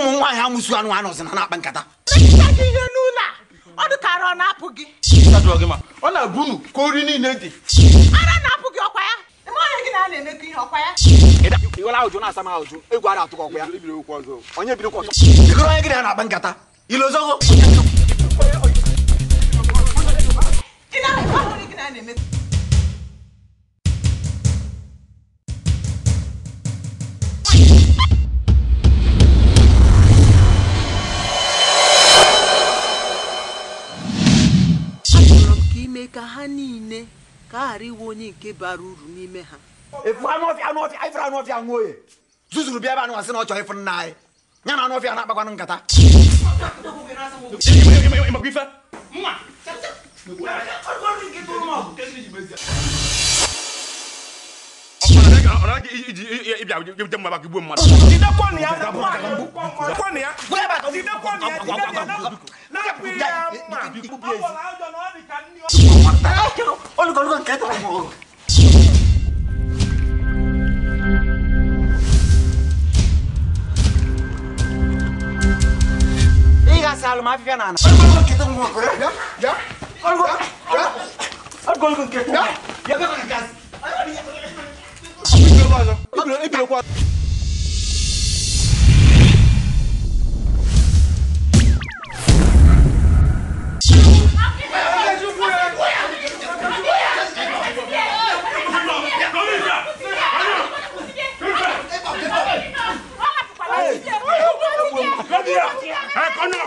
na ụmụ nwaanyị amụsu anụ anụ ọzọ na na-akpa nkata ihe n'ụlọ a ọ dị ka ọ na-apụ gị ọ na-abụ unu ka ori niile dị ara na-apụ gị ọkwa ya onye gị na ya na-akpa nkata mee ka ha niile ka a ghara iwe onye nke bara uru n'ime ha efu anụ ọfịa anụ oye zuzuru bịa ebe anụ asị na ọ chọrọ ifu nna anyị ya na anụ ọfịa na-akpakwanụ nkata mmadụ bi ko biye si. aw kero olu kɔni ko kɛ tɔgɔ mɔgɔ. i ka sa alu ma fi fɛn na. olu kɔni ko kɛ tɔgɔ mɔgɔ kɔrɔ ya ya. olu ko olu kɔni ko kɛ tɔgɔ mɔgɔ. ya ya bɛ ka gasi. i bila i bila ko. ¡Economía!